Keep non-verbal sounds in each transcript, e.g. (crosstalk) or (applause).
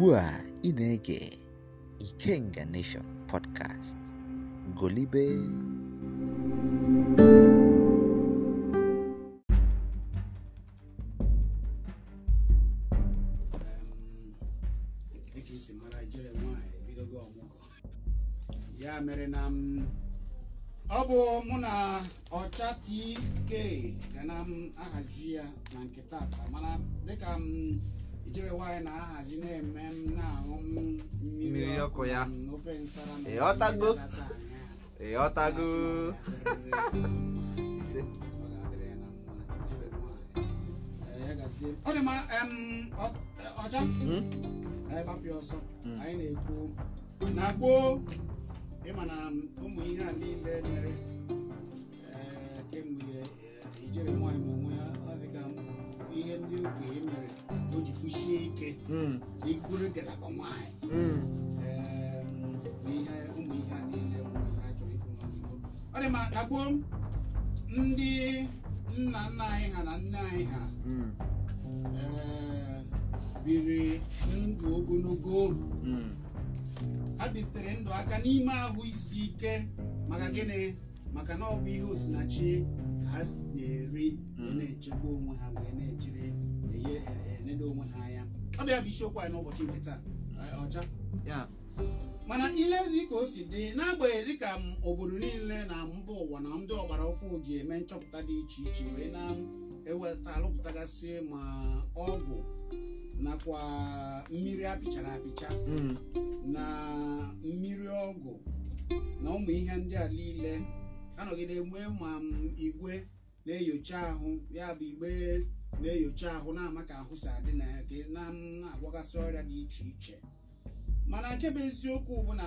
ugbu a ị na-ege Ikenga Nation podcast golibe ya mere na ọ bụ mụ na ọcha TK ga na m ya na mana dịka m ijere nwaanyị na-ahazi na-eme m na mmiri ọkụ ya ịghọtago ịghọtago e, hmm? na-ekwu na ịma na ụmụ ihe a niile mere kwụsie ike ịbụrụ ngalaba nwanyị ụmụ ihe a niile ụmụ ihe a chọrọ ịbụ n'ọdịgo ọ dị ma ka gboo ndị nna nna anyị ha na nne anyị ha hmm. eh, biri ndụ ogologo hmm. ha bitere ndụ aka n'ime ahụ isi ike maka gịnị maka na ọ bụ ihe osinachi ka ha na-eri hmm. na-echekwa onwe ha wee na-ejiri na-eledo onwe ha anya ọ bịa bụ isiokwu anyị n'ụbọchị nke taa ọcha mana ile dịka o si dị n'agbanyeghị dịka obodo niile na mba ụwa na ndị ọgbara ofu ji eme nchọpụta dị iche iche wee na-eweta alụpụtagasị ma ọgwụ nakwa mmiri apịchara apịcha mm. na mmiri ọgwụ na ụmụ ihe ndị a niile anọgide nwee ma igwe na-enyocha ahụ ya bụ igbe na-enyocha ahụ na-ama ka ahụ si adị na ya ka na na-agwagasị ọrịa dị iche iche mana nke bụ eziokwu bụ na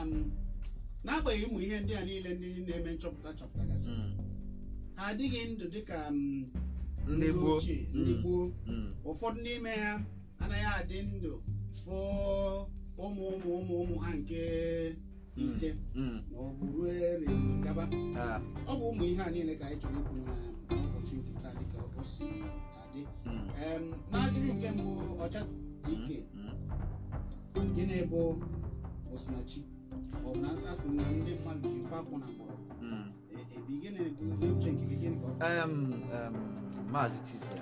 n'agbanyeghị ụmụ ihe ndị a niile ndị na-eme nchọpụta chọpụtagasị hmm. ha adịghị ndụ dịka ndị ochie ndị hmm. gboo hmm. ụfọdụ n'ime ha anaghị adị ndụ fụ ụmụ ụmụ ụmụ ụmụ ha nke ise ma ọ bụ ruo gaba ah. ọ bụ ụmụ ihe a niile ka anyị chọrọ ikwu na ụbọchị nkịta dịka o dị n'ajụjụ hmm. nke mbụ ọcha ike hmm, hmm. gịnị bụ osinachi ọbụna bụ na na ndị mmadụ ji mkpa akwụ na mkpọrọ ebi e gịnị dị uche nke gị gịnị ka ọ maazị tiza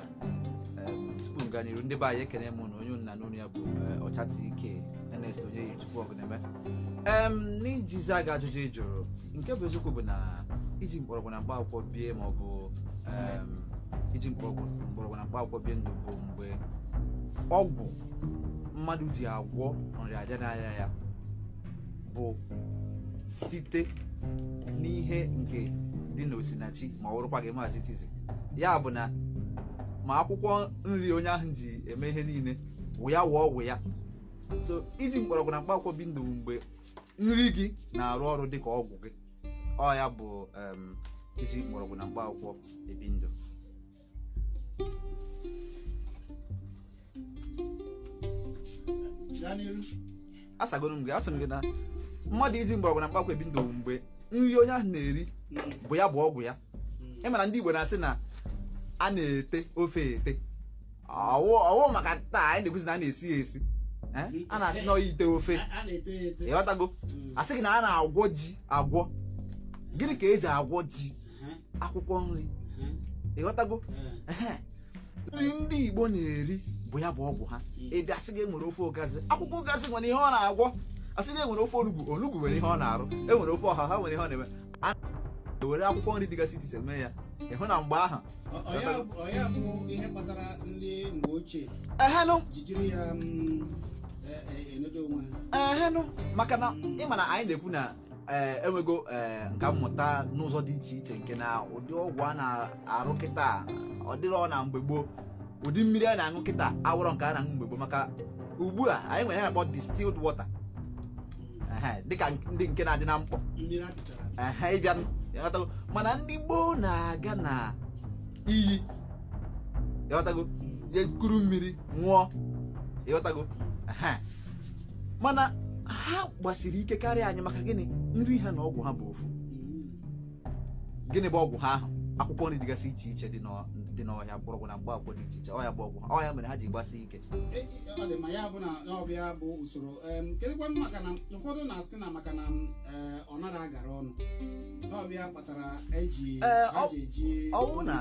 tupu m gaa n'iru ndị be anyị ekene m na onye nna n'onu ya bụ eh, ọcha ike Ernest onye yi tupu chukwu ọgụneme em n'ijizi aga ajụjụ ị jụrụ nke bụ eziokwu bụ na iji mgbọrọgwụ na mkpa akwụkwọ bie ma ọ bụ iji mkpọrọgwụ mgbọrọgwụ na mkpaakwụkwọ bie ndụ bụ mgbe ọgwụ mmadụ ji agwọ aja n'ahịa ya bụ site n'ihe nke dị n'osinachi ma ọ wụrụkwa gị maazị tizi ya bụ na ma akwụkwọ nri onye ahụ ji eme ihe niile wụ ya wụọ ọgwụ ya so iji mkpọrọgwụ na mkpaakwụkwọ bi ndụ mgbe nri gị na-arụ ọrụ dị ka ọgwụ gị ọ ya bụ iji mkpọrọgwụ na mkpa akwụkwọ ebi ndụ asagoro m gị asị m gị na mmadụ iji mgbọrọgwụ na mkpakwa ebi ndụ mgbe nri onye ahụ na-eri bụ ya bụ ọgwụ ya ị hmm. e mara ndị Igbo na-asị na a na-ete ofe ete ọwụ maka taa anyị na-ekwuzi na a na-esi ya esi a na-asị na ite ofe ịghọtago hmm. asị gị na a na-agwọ ji agwọ gịnị ka eji agwọ ji akwụkwọ nri ịghọtago hmm. nri ndị igbo na-eri bụ ya bụ ọgwụ ha ebe asị gị e nwere ofe ogazi akwụkwọ ogazi nwere ihe ọ na-agwọ asị gị e nwere ofe onugbu onugbu nwere ihe ọ na-arụ e nwere ofe ọha ha nwere ihe ọ na-eme a na-ewere akwụkwọ nri dịgasị iche iche mee ya ịhụ na mgbe ahụ ehenụ maka na ịma na anyị na-ekwu na Eh, enwego eh, nka mmụta n'ụzọ dị iche iche nke na ụdị ọgwụ a na-arụ kịta ọ dịrọ na mgbe gboo ụdị mmiri a na-aṅụ kịta awụrọ nke a na-aṅụ mgbe maka ugbu a anyị nwere na-akpọ wọta dị dịka ndị nke na-adị na mkpọ mana ndị gboo na-aga na iyi ịghọtago hmm. mmiri ṅụọ mana ha gbasiri ike karịa anyị maka gịnị nri ha na ọgwụ ha bụ ofu gịnị bụ ọgwụ ha ahụ akwụkwọ nri dịgasị iche iche dị n'ọhịa mgbọrọgwụ na mgbaakwụkwọ dị iche iche ọhịa bụ ọgwụ ọhịa mere ha ji gbasi ike e, e, ọ dị ma ya na ọbịa bụ usoro maka na na-asị maka na e, ọnara gara ọnụ ọwụ na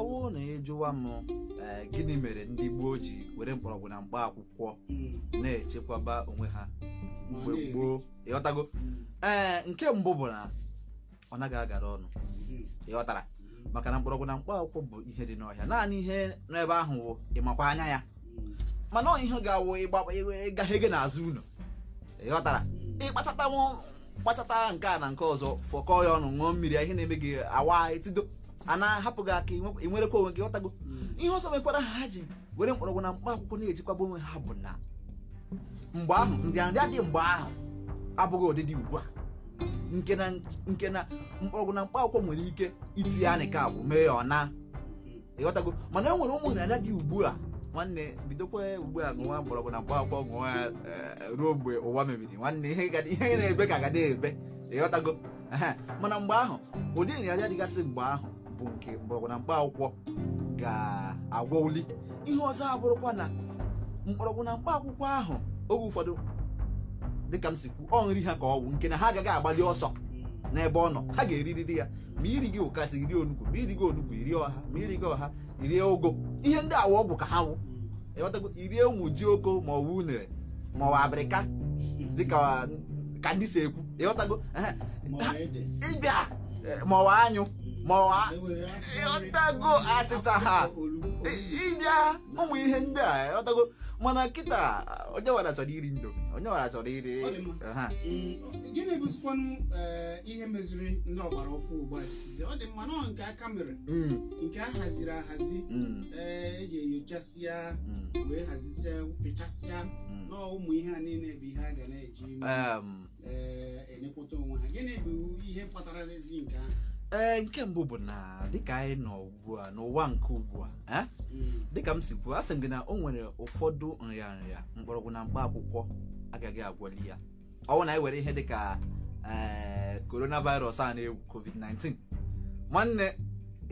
ọwụ na ịjụwa m gịnị mere ndị gboo ji were mgbọrọgwụ na mgba akwụkwọ hmm. na-echekwaba onwe ha mgbe gboo ịghọtago hmm. ee nke mbụ bụ na ọ naghị agara ọnụ hmm. ịghọtara maka na mgbọrọgwụ na mkpa akwụkwọ bụ ihe dị n'ọhịa naanị ihe n'ebe ahụ wụ ịmakwa anya ya mana ọ ihe ga-awụ ịgaghị gị n'azụ ụlọ ịghọtara ịkpachata kpachata nke a na nke ọzọ fọkọọ ya ọnụ ṅụọ mmiri ihe na-eme gị awa etido a na-ahapụ gị aka ịnwerekwa onwe gị ghọtago ihe ọzọ mekwara ha ji were mkpọrọgwụ na mkpa akwụkwọ na-ejikwaba onwe ha bụ na mgbe ahụ nrịanrịa dị mgbe ahụ abụghị ụdịdị ugbu a nke na mkpọrọgwụ na mkpa akwụkwọ nwere ike itinye ya ka abụ mee ya ọ na ịghọtago mana e nwere ụmụ nrịanrịa dị ugbu a nwanne bidokwa ugbu a ṅụwa mgbọrọgwụ na mkpa akwụkwọ ṅụwa eh, ruo mgbe ụwa mebiri nwanne ihe na-ebe ka agada ebe ịghọtago mana mgbe ahụ ụdị nrịanrịa dịgasị mgbe ahụ bụ nke mkpọrọgwụ na mkpa akwụkwọ ga oli ihe ọzọ abụrụkwa na mkpọrọgwụ na mkpa akwụkwọ ahụ oge ụfọdụ dịka m si kwu ọ nri ha ka ọ ọgwụ nke na ha agaghị agbalị ọsọ n'ebe ọ nọ ha ga-eririri ya ma iri gị ụkasị iri onugbu ma iri gị onugbu iri ọha ma iri gị ọha irie ogo ihe ndị awa ọgwụ ka ha wụ irie ụmụ ji oko ma ọ wụ unere ma ọ wụ abịrịka dịka ka ndị si ekwu ịghọtago ịbịa ma ọ wụ anyụ ma ọwa e ịghọtago achịcha ha ịbịa ụmụ ihe ndị a ọtago mana kịta onye nwara chọrọ iri ndomi onye nwara chọrọ iri ha mm, gịnị bụzikwanụ eh, ihe meziri ndị ọgbara ọfụ ugbu a ọ dị mma nọ nke aka mere mm. nke a haziri ahazi mm. eji eh, e enyochasịa wee hazisia pịchasịa nọ ụmụ ihe a niile bụ ihe a ga na-eji enekọta eh, onwe ha gịnị bụ ihe kpatara n'ezi nke ahụ ee nke mbụ bụ na dịka anyị nọ ugbu a n'ụwa nke ugbu a hmm. dịka m si kwuo a sị m gị na o nwere ụfọdụ nrịa nrịa mgbọrọgwụ na mkpa akwụkwọ agaghị agwọli ya ọnwụ na anyị were ihe dịka coronavirus a na-egwu covid-19 nwanne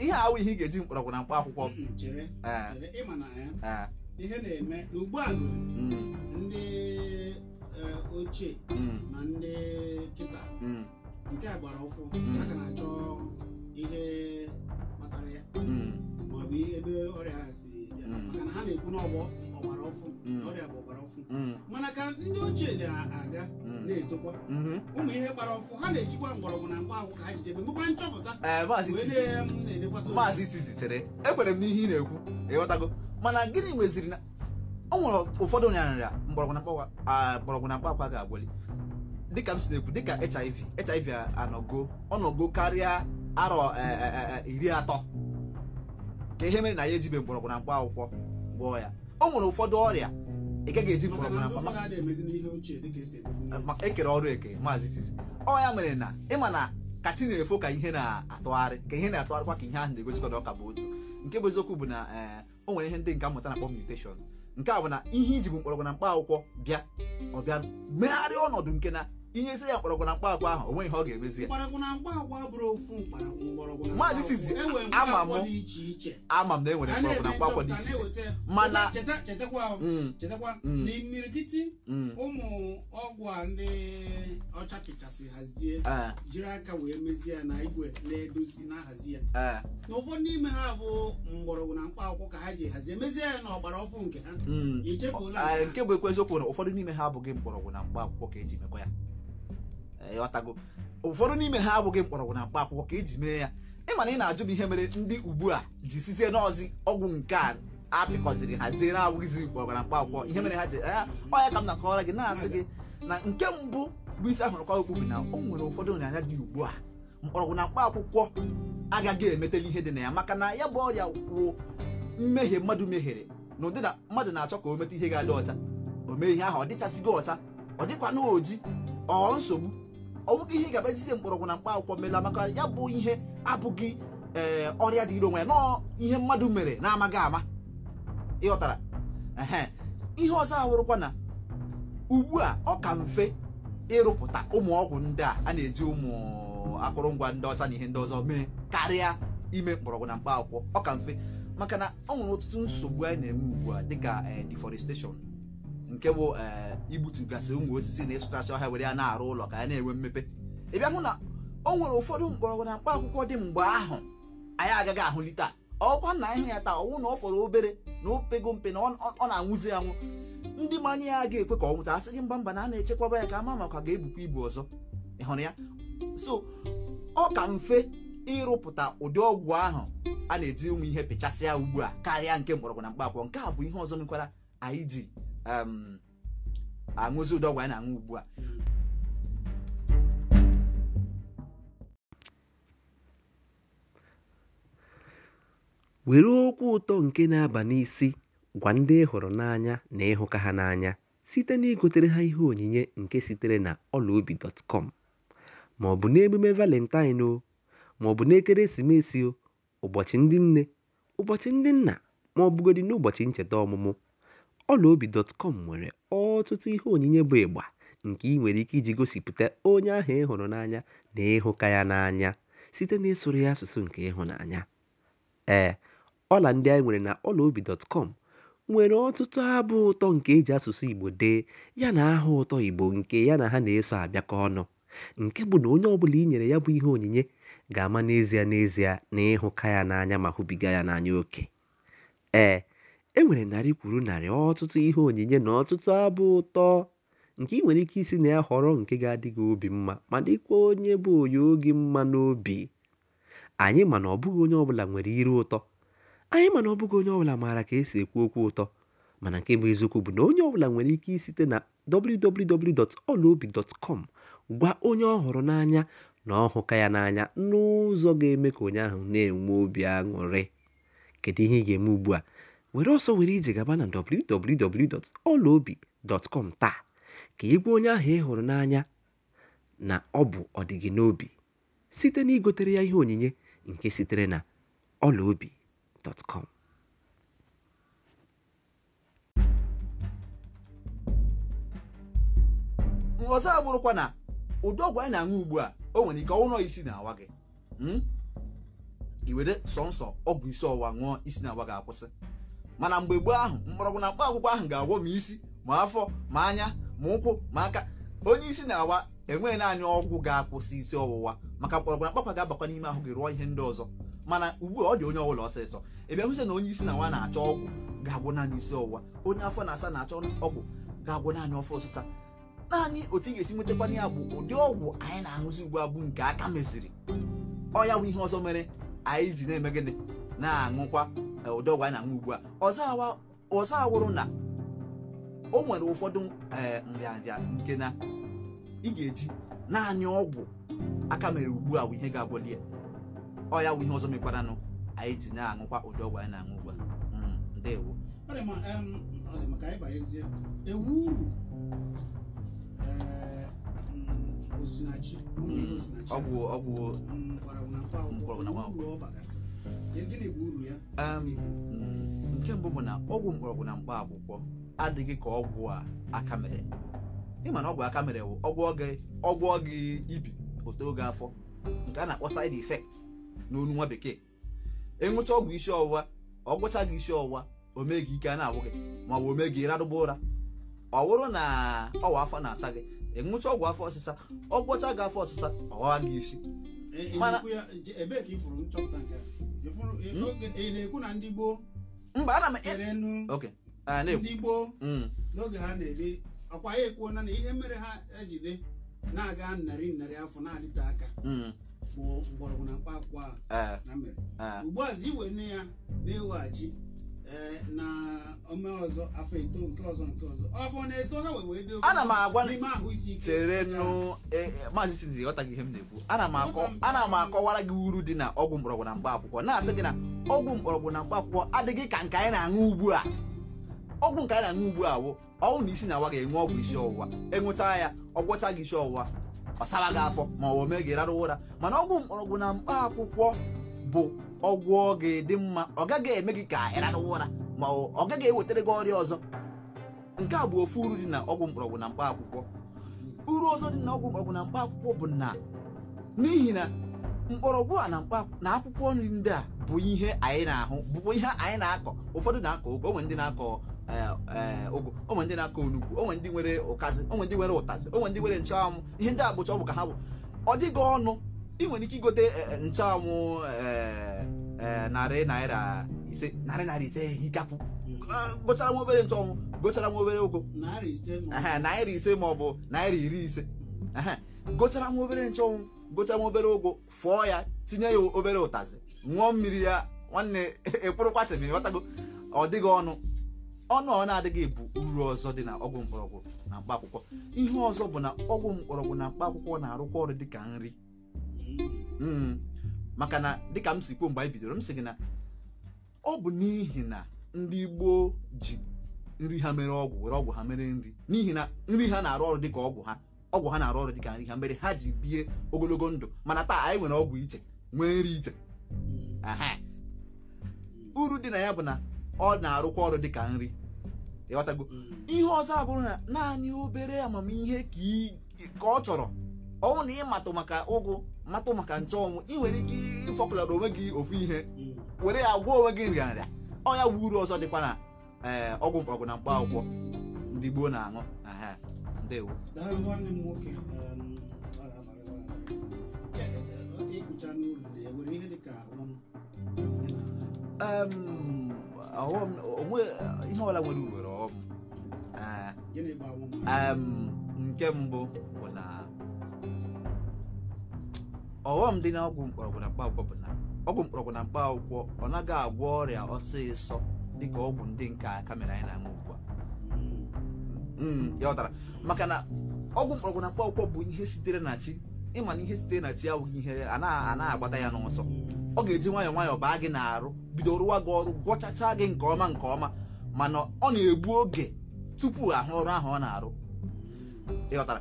ihe awụ ihe ị ga-eji mkpọrọgwụ na mkpa akwụkwọ hmm, e, ihe na-eme n'ugbu a hmm. ndị e, ochie na ndị kịta nke a gbara ụfụ aga na-achọ ihe kpatara ya hmm. maọbụ ihe ebe ọrịa ha si bịa hmm. maka na ha na-ekwu n'ọgbọ ọgbara ọfụ hmm. ọrịa bụ ọgbara ọfụ mana ka ndị ochie na-aga na-etokwa ụmụ ihe gbara ọfụ ha na-ejikwa mgbọrọgwụ na mkpa akwụkwọ ha jidebe mekwa nchọpụta eh, maazị tizi chere ekwere m n'ihe ị na-ekwu ịghọtago mana gịnị meziri na o nwere ụfọdụ nyanrịa mgbọrọgwụ na mkpa akwa ga-agwali dịka m si na-ekwu dịka hiv hiv anọgo ọnọgo karịa arọ e, e, e, iri atọ ka ihe mere na ya ejibe mgbọrọgwụ na mkpa akwụkwọ gwọọ ya o nwere ụfọdụ ọrịa ị ekere ọrụ eke maazị Tizzy ọ ya mere na ịma na ka chi na-efo ka ihe na-atụgharị ka ihe na-atụgharịkwa ka ihe ahụ na-egosikọta ọka bụ otu nke bụ eziokwu bụ na o nwere ihe ndị nka mmụta na-akpọ mutation nke a bụ na ihe iji bụ mgbọrọgwụ na mkpa akwụkwọ bịa ọ bịa megharịa ọnọdụ nke na isi ya mkpọrọgwụ na mkpa agwa ahụ onwe ihe ọ ga-emezi maazị sizi ama m ama m na enwere na mkpa dị iche iche mana na mm. mm. imirikiti mm. ụmụ ọgwụ a ndị ọcha hazie eh. jiri aka wee mezie ya na igwe na-edozi eh. na hazi ya na n'ime ha bụ mgbọrọgwụ na mkpa ka ha ji hazie mezie ya na ọgbara ọfụ nke ha eh, nke bụ ekwe na ụfọdụ n'ime ha abụghị mgbọrọgwụ na mkpa akwụkwọ ka eji mekwa ya ịghọtago eh, ụfọdụ n'ime ha abụghị mkpọrọgwụ na mkpa akwụkwọ ka eji mee ya ị mana ị na-ajụ m ihe mere ndị ugbu a ji sizie n'ọzi ọgwụ nke a apịkọziri hazie na-abụghịzi mkpọrọgwụ na mkpa akwụkwọ ihe mere ha ji ah, ọ ya ka m na gị na-asị gị na nke mbụ bụ isi ahụrụ kwa okwu na o nwere ụfọdụ nrịanya dị ugbu a mkpọrọgwụ na mkpa akwụkwọ agaghị emetela ihe dị na ya maka na ya bụ ọrịa wụ mmehie mmadụ mehiere na ụdị na mmadụ na-achọ ka o meta ihe ga-adị ọcha o mee ihe ahụ ọ dịchasịgo ọcha ọ dịkwa n'oji ọ nsogbu ọ bụghị ihe ga-abajizi mgbọrọgwụ na mkpa akwụkwọ mela maka ya bụ ihe abụghị ee eh, ọrịa dị onwe ya na ihe mmadụ mere na-amaghị ama ịghọtara ehe ihe ọzọ ahụrụkwa na ugbu a ọ ka mfe ịrụpụta ụmụ ọgwụ ndị a a na-eji ụmụ akụrụngwa ndị ọcha na ihe ndị ọzọ mee karịa ime mgbọrọgwụ na mkpa akwụkwọ ọ ka mfe maka na ọ nwere ọtụtụ nsogbu anyị na-eme ugbu a dịka eh, deforestation nke bụ eh, igbutugasị ụmụ osisi na ịsụchasị ọhịa were ya na-arụ ụlọ ka ya na-enwe mmepe ị bịa hụ na o nwere ụfọdụ mgbọrọgwụ na mkpa akwụkwọ dị mgbe ahụ anyị agaghị ahụli taa ọkwa na ịhụ ya taa ọnwụ na ọ fọrọ obere na opego mpe na ọ na-anwụzi anwụ ndị manye ya ga-ekwe ka ọ nwụta asị gị mba mba na a na-echekwaba ya ka ama maka ga-ebukwa ibu ọzọ ị hụrụ ya so ọ ka mfe ịrụpụta ụdị ọgwụ ahụ a na-eji ụmụ ihe pịchasịa ugbu a karịa nke mgbọrọgwụ na mkpa akwụkwọ nke a bụ ihe ọzọ mekwara anyị ji Um, aṅụzi ụdọ ọgwụ na-aṅụ ugbu a were okwu ụtọ nke na-aba n'isi gwa ndị ịhụrụ hụrụ n'anya na ịhụka ha n'anya site na igotere ha ihe onyinye nke sitere na ọlaobi.com ma ọ bụ n'emume valentine o ma ọ bụ n'ekeresimesi o ụbọchị ndị nne ụbọchị ndị nna ma ọ bụgodị n'ụbọchị ncheta ọmụmụ Ọlaobi.com nwere ọtụtụ ihe onyinye bụ ịgba nke i nwere ike iji gosipụta onye ahụ ị hụrụ n'anya na ịhụka ya n'anya site n'ịsụrụ ya asụsụ nke ịhụnanya. Ee, ọla ndị anyị nwere na Ọlaobi.com nwere ọtụtụ abụ ụtọ nke e ji asụsụ Igbo dee yana aha ụtọ Igbo nke ya na ha na-eso abịakọ ọnụ, nke bụ na onye ọbụla i nyere ya bụ ihe onyinye ga-ama n'ezie n'ezie na ịhụka ya n'anya ma hụbiga ya n'anya oke. Ee. E nwere narị kwuru narị ọtụtụ ihe onyinye na ọtụtụ abụ ụtọ nke ị nwere ike isi na ya họrọ nke ga adịghị obi mma ma dịkwa onye bụ onye oge mma n'obi anyị mana ọbụghị onye ọbụla nwere iru ụtọ anyị mana ọbụghị onye ọbụla maara ka esi ekwu okwu ụtọ mana nke bụ eziokwu bụ na onye ọbụla nwere ike isite na www.olaobi.com gwa onye ọ n'anya na ọhụka ya n'anya n'ụzọ ga-eme ka onye ahụ na-enwe obi aṅụrị kedu ihe ị ga-eme ugbu a were ọsọ were ije gaba na www.ọlaobi.com taa ka ị gwa onye ahụ ị hụrụ n'anya na ọ bụ ọdịgị n'obi site na igotere ya ihe onyinye nke sitere na ọlaobi.com ọzọ abụrụkwa na ụdị ọgwụ anyị na-aṅụ ugbu a o nwere ike ọnwụnọ isi na-awa gị hmm? iwere sọnsọ ọgwụ isi ọwụwa ṅụọ isi na-awa gị akwụsị mana mgbe gboo ahụ mgbọrọgwụ na mkpa akwụkwọ ahụ ga-agwọ m isi ma afọ ma anya ma ụkwụ ma aka onye isi na-awa enweghị naanị ọgwụ ga-akwụsị isi ọwụwa maka mgbọrọgwụ na mkpakwa ga-abakwa n'ime ahụ gị rụọ ihe ndị ọzọ mana ugbu a ọ dị onye ọbụla ọsịsọ ebe hụsị na onye isi na awa na-achọ ọgwụ ga-agwọ naanị isi ọwụwa onye afọ na-asa na-achọ ọgwụ ga-agwọ naanị ọfọ ọsịsa naanị otu ị ga-esi nwetakwana ya bụ ụdị ọgwụ anyị na-aṅụzi ugbu a bụ nke aka meziri ọ ya bụ ihe ọzọ mere anyị ji na-eme gịnị na-aṅụkwa ụdị ọgwụ anyị na-aṅụ ugbu a ọzọ awụrụ na o nwere ụfọdụ e, nrịanrịa nke na ị ga-eji naanị ọgwụ aka mere ugbu a bụ ihe ga-abụli ya ọ ya bụ ihe ọzọ mekwaranụ anyị ji na-aṅụkwa ụdị ọgwụ anyị na-aṅụ ugbu a hmm, ndewo ewu uru e, mm, ọgwụ ọgwụ mm, mkpọrọgwụ na mkpọrọgwụ nke mbụ bụ na ọgwụ mgbọrọgwụ na mkpa akwụkwọ adịghị ka ọgwụ a aka mere ịma na ọgwụ aka mere bụ ọgwụ oge ibi otu oge afọ nke a na-akpọ side effect n'onu nwa bekee ịṅụcha e ọgwụ isi ọwụwa ọgwụcha gị isi ọwụwa o mee gị ike a na-agwụ gị ma ọ bụ o mee gị ụra ọ na ọwa afọ na-asa gị ịṅụcha e ọgwụ afọ ọsịsa ọgwụcha gị afọ ọsịsa ọwa gị isi e, mana Hmm? ị na-ekwu na ndị gboo mba ana m e- kere nnu ndị gboo hmm. n'oge ha na-ebi ọkwa ya ekwuona na ihe mere ha ejide na-aga narị narị afọ na-adịte aka hmm. bụ mgbọrọgwụ na mkpa akwụkwọ a na mere ugbu a iwere ya na-eweghachi Eh, na ome ọzọ afọ eto nke ọzọ nke ọzọ ọfọ na-eto ha wee wee doo ana m agwa n'ime ahụ isi ike chere nụ eh, eh, maazị Chidi ghọtaghị ihe m na-ekwu ana m akọwara gị uru dị na ọgwụ mgbọrọgwụ na mkpa akwụkwọ na-asị gị na ọgwụ mgbọrọgwụ na mkpa akwụkwọ adịghị ka nke anyị na-aṅụ ugbu a ọgwụ nke anyị na-aṅụ ugbu a wụ ọnwụ na isi na-awa ga-enwe ọgwụ isi ọwụwa ịṅụcha e ya ọgwọcha gị isi ọwụwa ọ sara gị afọ ma ọ mee gị rarụ ụra mana ọgwụ mgbọrọgwụ na mkpa akwụkwọ bụ ọgwụ ọ ga-edị mma ọ gaghị eme gị ka ịrarụwa ụra ma ọ gaghị ewetara gị ọrịa ọzọ nke a bụ ofu uru dị na ọgwụ mkpọrọgwụ na mkpa akwụkwọ uru ọzọ dị na ọgwụ mkpọrọgwụ na mkpa akwụkwọ bụ na n'ihi na mkpọrọgwụ a na na akwụkwọ nri ndị a bụ ihe anyị na-ahụ bụkwa ihe anyị na-akọ ụfọdụ na-akọ ụgụ onwe ndị na-akọ ụgụ e, e, onwe ndị na-akọ onugbu onwe ndị nwere onwe ndị nwere ụtazị onwe ndị nwere nchụanwụ ihe ndị a bụcha ọgwụ ka ha bụ ọ dịghị ọnụ ị nwere ike igote eh, eh, nchụanwụ eh, narị naira ise narị naira ise hikapụ ah, gochara nwa obere nchụanwụ gochara nwa obere ụgụ naira ise ma ọ bụ naira iri ise gochara nwa obere nchụanwụ gochara nwa obere ụgwọ fụọ ya tinye ya obere ụtazị ṅụọ mmiri ya nwanne (laughs) ekpụrụkwachịm ịghọtago ọ dịghị ọnụ ọnụ ọ na-adịghị bụ uru ọzọ dị na ọgwụ mkpọrọgwụ na mkpa akwụkwọ ihe ọzọ bụ na ọgwụ mkpọrọgwụ na mkpa akwụkwọ na-arụkwa ọrụ dịka nri Mm. maka na dịka m si kwuo mgbe anyị bidoro m sị gị na ọ bụ n'ihi na ndị gboo ji nri ha mere ọgwụ were ọgwụ ha mere nri n'ihi na nri ha na-arụ ọrụ dịka ọgwụ ha ọgwụ ha na-arụ ọrụ dịka nri ha mere ha ji bie ogologo ndụ mana taa anyị nwere ọgwụ iche nwee nri iche uru dị na ya bụ na ọ na-arụkwa ọrụ dịka nri ịghọtago ihe ọzọ abụrụ na naanị obere amamihe ka ọ chọrọ ọnwụ na ịmatụ maka ụgụ matụ maka nche ọnwụ ị nwere ike ịfọpụlara onwe gị ofu ihe hmm. were ya gwụọ onwe gị nrịa ọ ya bụ uru ọzọ dịkwa na ee eh, ọgwụ mkpọrọgwụ na mkpa akwụkwọ hmm. ndị gboo na-aṅụ ndewo ihe ọla nwere uwere ọghọm nke mbụ bụ na ọghọm dị na ọgwụ mkpọrọgwụ na mkpaakwụkwọ bụ na ọgwụ mkpọrọgwụ na mkpaakwụkwọ ọ naghị agwọ ọrịa ọsịsọ dịka ọgwụ ndị nke a kamera anyị na-aṅụ ugbu a hmm, ya maka na ọgwụ mkpọrọgwụ na mkpaakwụkwọ bụ ihe sitere na chi ịma na ihe sitere na chi awụghị ihe a na-anaghị agbata ya n'ọsọ ọ ga-eji nwayọọ nwayọọ baa gị n'arụ bido rụwa gị ọrụ gwọchachaa gị nke ọma nke ọma mana ọ na-egbu oge tupu ahụ ọrụ ahụ ọ na-arụ ịghọtara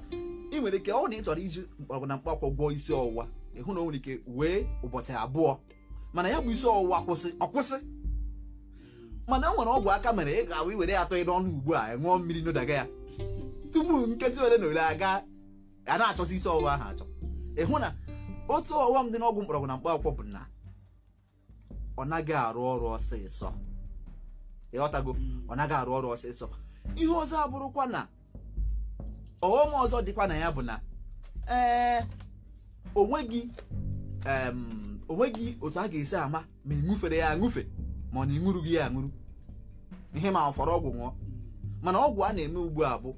ị nwere ike ọ na ị chọrọ iji mkpọrọgwụ na gwọọ isi ọwụwa ịhụ na o nwere ike wee ụbọchị abụọ mana ya bụ isi ọwụwa kwụsị ọkwụsị mana e nwere ọgwụ aka mere ị ga-awụ iwere atọ ịdọ ọnụ ugbu a ṅụọ mmiri n'ụdaga ya tupu nkeji ole na ole aga a na-achọsi isi ọwụwa ahụ achọ ịhụ na otu ọwụwa m dị n'ọgwụ mkpọrọgwụ na mkpa akwụkwọ bụ na ọ naghị arụ ọrụ ọsịsọ ịghọtago ọ naghị arụ ọrụ ọsịsọ ihe ọzọ abụrụkwa na ọghọm ọzọ dịkwa na ya bụ na ee Onwe gị otu a ga-esi ama ma ị ṅụfere ya aṅụfe ma ọ na gị ya aṅụrụ ihe ma fọrọ ọgwụ ṅụọ mana ọgwụ a na-eme ugbu a bụ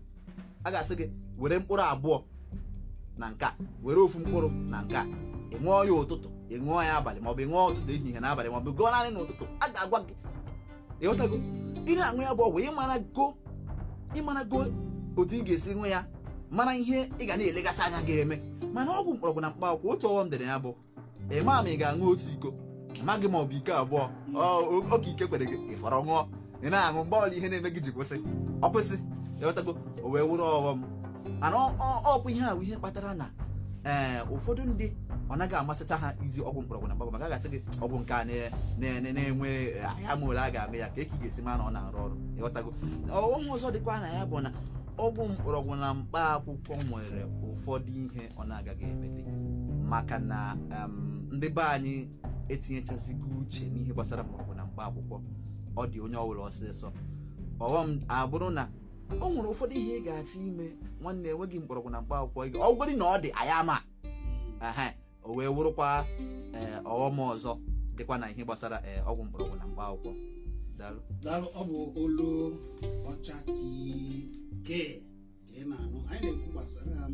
a ga-asị gị were mkpụrụ abụọ na nka were ofu mkpụrụ na nka ị ṅụọ ya ụtụtụ ị ṅụọ ya abalị maọbụ ịṅụọ ṅụọ ụtụtụ ehihie n'abalị maọbụ gụọ naanị n'ụtụtụ a ga-agwa gị ịghọtago ị na-aṅụ ya bụ ọgwụ ịmara go otu ị ga-esi ṅụ ya mara ihe ị ga na-elegasị anya ga-eme mana ọgwụ mkpọrọgwụ na mkpa akwụkwọ otu ọghọm dịrị ya bụ ịma ma ị ga-aṅụ otu iko amaghị ma ọ bụ iko abụọ oke ike kwere gị ịfọrọ ṅụọ ị na-aṅụ mgbe ọla ihe na-eme gị ji kwụsị ọ kwụsị ịghọtago o wee wụrụ ọghọm ana ọkwa ihe ahụ ihe kpatara na ee eh, ụfọdụ ndị ọ naghị amasịcha ha iji ọgwụ mkpọrọgwụ na mkpọrọgwụ maka a gasị gị ọgwụ nke a na-enwe ahịa eh, ma ole a ga-eme ya ka eke ị ga-esi ma na ọ na-arụ ọrụ ịghọtago ọghọm ọzọ dịkwa na ya bụ na ọgwụ mkpọrọgwụ na mkpa akwụkwọ nwere ụfọdụ ihe ọ na-agaghị emeli maka na ndị be anyị etinyechazigo uche n'ihe gbasara mgbọrọgwụ na mkpa akwụkwọ ọ dị onye ọbụla ọsịsọ ọghọm abụrụ na o nwere ụfọdụ ihe ị ga-achọ ime nwanne enweghị mkpọrọgwụ na mkpa akwụkwọ ọ gwere na ọ dị ma ama o wee wụrụkwa e, ọghọm ọzọ dịkwa na ihe gbasara e, ọgwụ mkpọrọgwụ na mkpa akwụkwọ daalụ ọ bụ olu ọcha tii bekee ka ị na-anụ anyị na-ekwu gbasara ha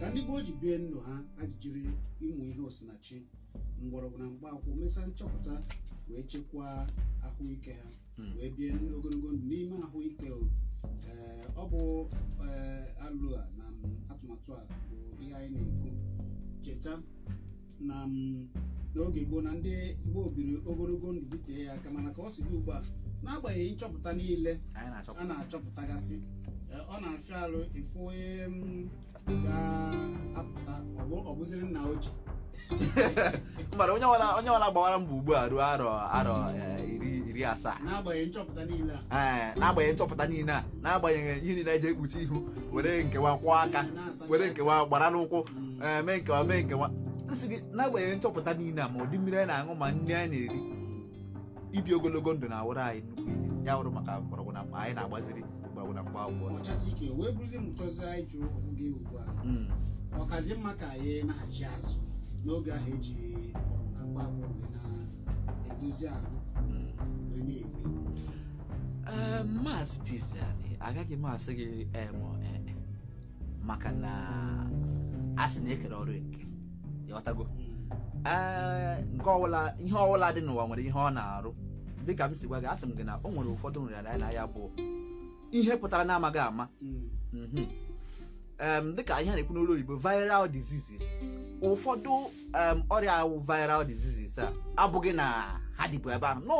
ka ndị gboo ji bie ndụ ha ajijiri ịmụ ihe osinachi mgbọrọgwụ na akwụkwọ mesaa nchọpụta wee chekwaa ahụike ha hmm. wee bie ogologo ndụ n'ime ahụike ọ bụ alụ a na atụmatụ a bụ ihe anyị na-ekwu cheta na n'oge gboo na ndị gboo biri ogologo ndụ bitee ya aka mana ka ọ si dị ugbu a n'agbanyeghị nchọpụta niile a na-achọpụtagasị ọ na-afịa alụ ịfụ onye m mm, ga-apụta ọbụziri nna ochie (laughs) mara onye ọbụla gbawara mbọ ugbu a ruo arọ arọ e, iri iri asaa n'agbanyeghị nchọpụta niile a n'agbanyeghị nchọpụta niile a n'agbanyeghị ihe niile eji ekpuchi ihu were nkewa kwụọ aka were nkewa gbara n'ụkwụ mm. e, mee nkewa mee nkewa nsị gị n'agbanyeghị nchọpụta niile a ma ụdị mmiri anyị na-aṅụ ma nri anyị na-eri ibi ogologo ndụ na-awụrụ anyị nnukwu ihe ya wụrụ maka mgbọrọgwụ na anyị na-agbaziri gwagwara mkpa akwụkwọ ike wee bụrụzie m chọzi anyị jụrụ gị ugbu a ọkazi mma ka anyị na-achị azụ n'oge ahụ eji mkpọrọgwụ na mkpa akwụkwọ wee na-edozi ahụ wee na-eri maazị Tizani agaghị m asị gị emo maka na a sị na-ekere ọrụ nke ịghọtago nke ọwụla ihe ọwụla dị n'ụwa nwere ihe ọ na-arụ dịka m si gwa gị asị m gị na o nwere ụfọdụ nrịarịa na ya bụ ihe pụtara na-amaghị ama mm-hmm. Mm-hmm. Um, dịka ihe na-ekwu n'olu oyibo viral diseases ụfọdụ um, ọrịa awụ viral diseases a abụghị na ha dịbụ ebe ahụ nọ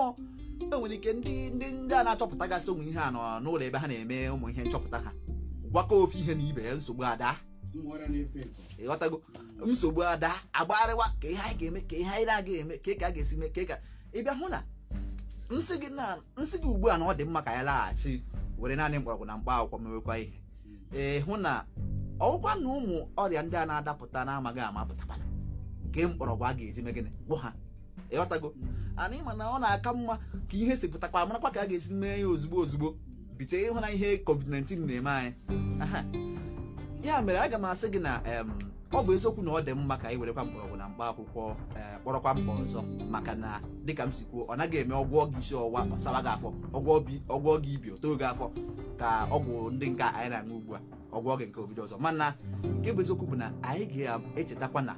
enwere ike ndị ndị ndị a na achọpụta gasị ụmụ ihe a nọ n'ụlọ ebe ha na-eme ụmụ ihe nchọpụta ha gwakọ ofe ihe na ibe nsogbu ada ịghọtago nsogbu ada agbarịwa ka ihe anyị ga-eme ka ihe anyị na-aga eme ka ka a ga-esi mee ka ka ịbịa hụ na nsị gị ugbu a na ọ dị mma ka anyị laghachi were naanị mgbọrọgwụ na mkpa akwụkwọ mewekwa ihe ee hụ na ọgwụkwa na ụmụ ọrịa ndị a na-adapụta na-amaghị ama pụtabana nke mgbọrọgwụ a ga-eji mee gịnị gwọ ha ịghọtago ana ịma na ọ na-aka mma ka ihe si pụtakwa marakwa ka a ga-esi mee ya ozugbo ozugbo biche ịhụ na ihe covid-19 na-eme anyị ya mere aga m asị gị na ọ bụ eziokwu na ọ dị mma ka anyị werekwa mgbọrọgwụ na mkpa akwụkwọ eh, kpọrọkwa mkpa ọzọ maka na dịka m si kwuo ọ naghị eme ọgwụ ọgụ isi ọwụwa ọsara gị afọ ọgwụ ọgụ ibi oto oge afọ ka ọgwụ ndị nke anyị na-aṅụ ugbu a ọgwụ ọgụ nke obido ọzọ mana nke bụ eziokwu bụ na anyị ga-echetakwa na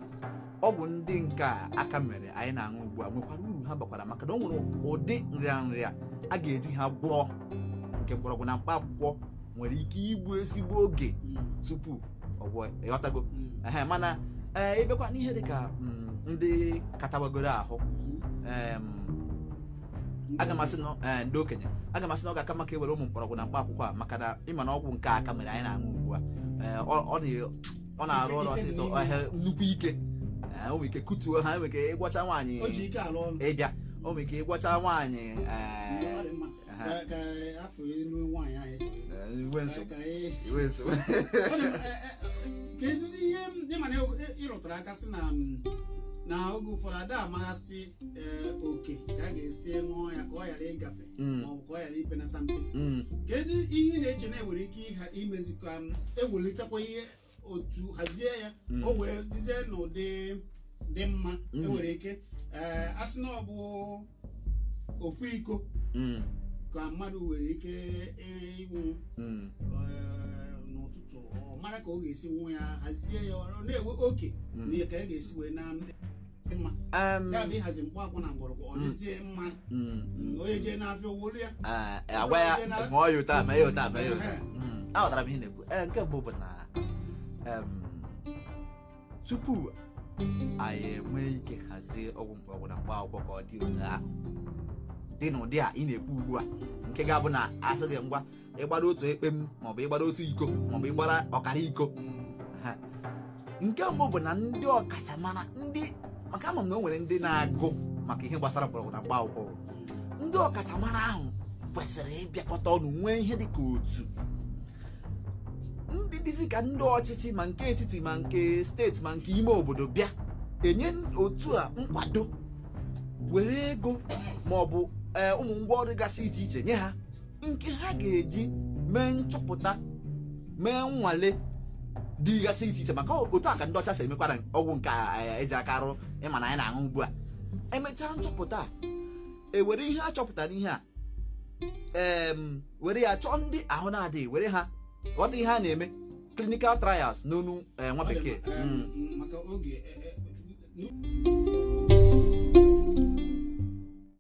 ọgwụ ndị nke aka mere anyị na-aṅụ ugbu a nwekwara uru ha bakwara maka na ọ nwere ụdị nrịanrịa a ga-eji ha gwọọ nke mgbọrọgwụ na mkpa akwụkwọ nwere ike igbu ezigbo oge tupu ọgwụ mm. mana ee eh, n'ihe dịka mm, ndị katabagoro ahụ aga m asị na eh, ndị okenye aga m asị na ọ ga-aka maka ewere ụmụ mkpọrọgwụ na mkpa akwụkwọ a maka na ịma na ọgwụ nke aka mere anyị na-aṅụ ugbu a eh, ọ na-arụ ọrụ ọsịsọ eh, nnukwu ike o nwere ike kutuo ha nwere ike ịgwacha nwaanyị ịbịa o nwere ike ịgwacha nwaanyị ihe ịrụtara aka na oge ụfọdụ ada amaghasị eh, oke ka a ga-esi ṅụọ ya ka ọ ghara ịgafe mm. maọbụ ka ọ ghara ipenata mpe mm. kedu ihe na-eche na enwere ike imezikọ ewulitekwa ihe otu hazie ya mm. o wee dizie n'ụdị dị mma enwere ike eh, asị na ọ bụ ofu iko ka mmadụ nwere ike e, ịnwụ eh, n'ụtụtụ ọ mara ka ọ ga-esi nwụ ya hazie ya ọ na-enwe oke na ka ya ga-esi wee na Um, ya aghọtara mm. mm, mm, ah, ah, ah, m ihe na-ekwu eh, nke mbụ bụ na um, tupu anyị enwee ike hazie ọgwụ na mkpaakwụkwọ ka ọ dị ụtọ dị n'ụdị a ị na-ekwu ugbu a nke ga-abụ na asị gị ngwa ịgbara otu ekpe m maọbụ ịgbara otu iko maọbụ ịgbara ọkara iko nke mbụ bụ na ndị ọkachamara ndị maka ama m na o nwere ndị na-agụ maka ihe gbasara mgbọrọgwụ na mgba akwụkwọ ndị ọkachamara ahụ kwesịrị ịbịakọta ọnụ nwee ihe dịka otu ndị dịzi ka ndị ọchịchị ma nke etiti ma nke steeti ma nke ime obodo bịa enye otu a nkwado were ego ma ọ bụ e, ụmụ ọrụ gasị iche iche nye ha nke ha ga-eji mee nchọpụta mee nnwale dị iche iche maka otu a ka ndị ọcha si emekwara ọgwụ nke eh, eji aka arụ ịma na anyị na-aṅụ ugbu a emechaa nchọpụta ewere ihe a chọpụtara ihe a were ya chọọ ndị ahụ na-adịghị were ha ghọta ihe a na-eme clinical trials n'onu eh, nwa bekee